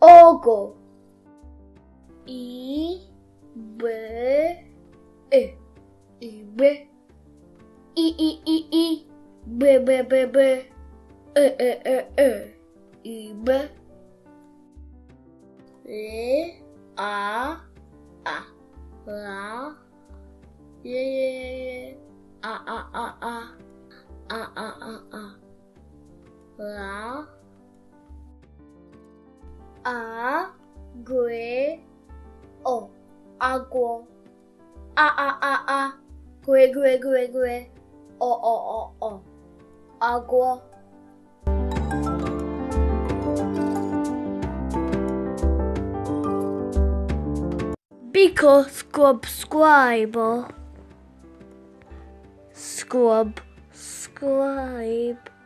ogo. I b e i b i i i i b b b b e e e e i b l a a la ye ye ye a a a a a a a a la a gue o agua a a a a gue gue gue gue o o o o agua Biko scrub scribe scrub scribe